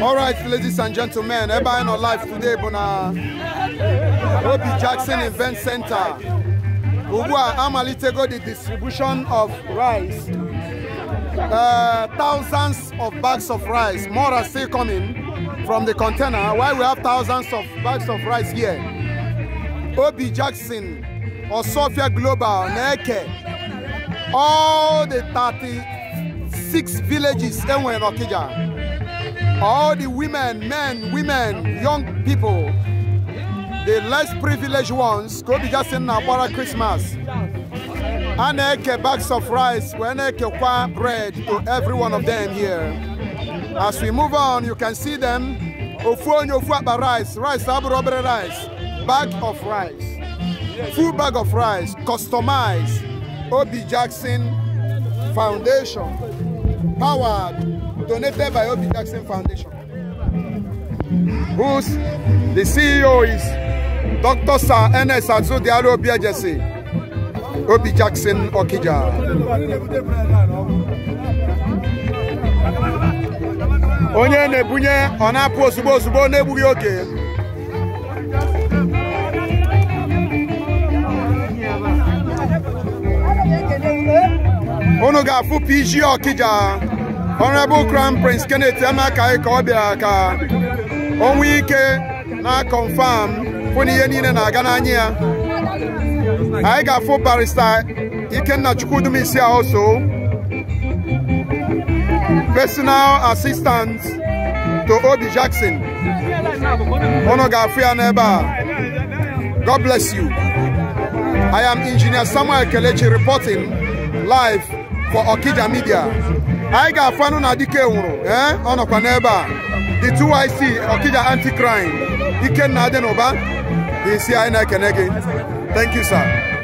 All right, ladies and gentlemen, Eba in our life today, Bona Obi Jackson Event Center. Ugua Amalitego, the distribution of rice. Uh, thousands of bags of rice. More are still coming from the container. Why we have thousands of bags of rice here? Obi Jackson or Sofia Global, Neke. All the 36 villages in Okija all the women, men, women, young people, the less privileged ones, go be just in Nabara Christmas. And a bags of rice, when a bread to every one of them here. As we move on, you can see them. Ofuon Ofuaba rice, rice, abu rubber rice, bag of rice, full bag of rice, customized. Obi Jackson Foundation, powered donated by Obi Jackson Foundation, Who's the CEO is Dr. Sir Ernest Diallo jesse. Obi Jackson Okija. Onye PG Okija. honorable crown prince kenneth amaka ka ọ bịara ka o ike na confam fụ ihe niile na-aga n'anya ya anyị ga-afụ barista ikenna ahụ so personal assistant to obi jackson unu ga-afụ ya n'ebe a god bless you i am engineer samuel kelechi reporting live for okija media anyị ga-afụ anụ na dike nwụrụ ee eh? ọ nọkwa n'ebe a the 2ic ọkija anti crime ikenna adị n'ụba isi anyị na-ekene gị thank you sir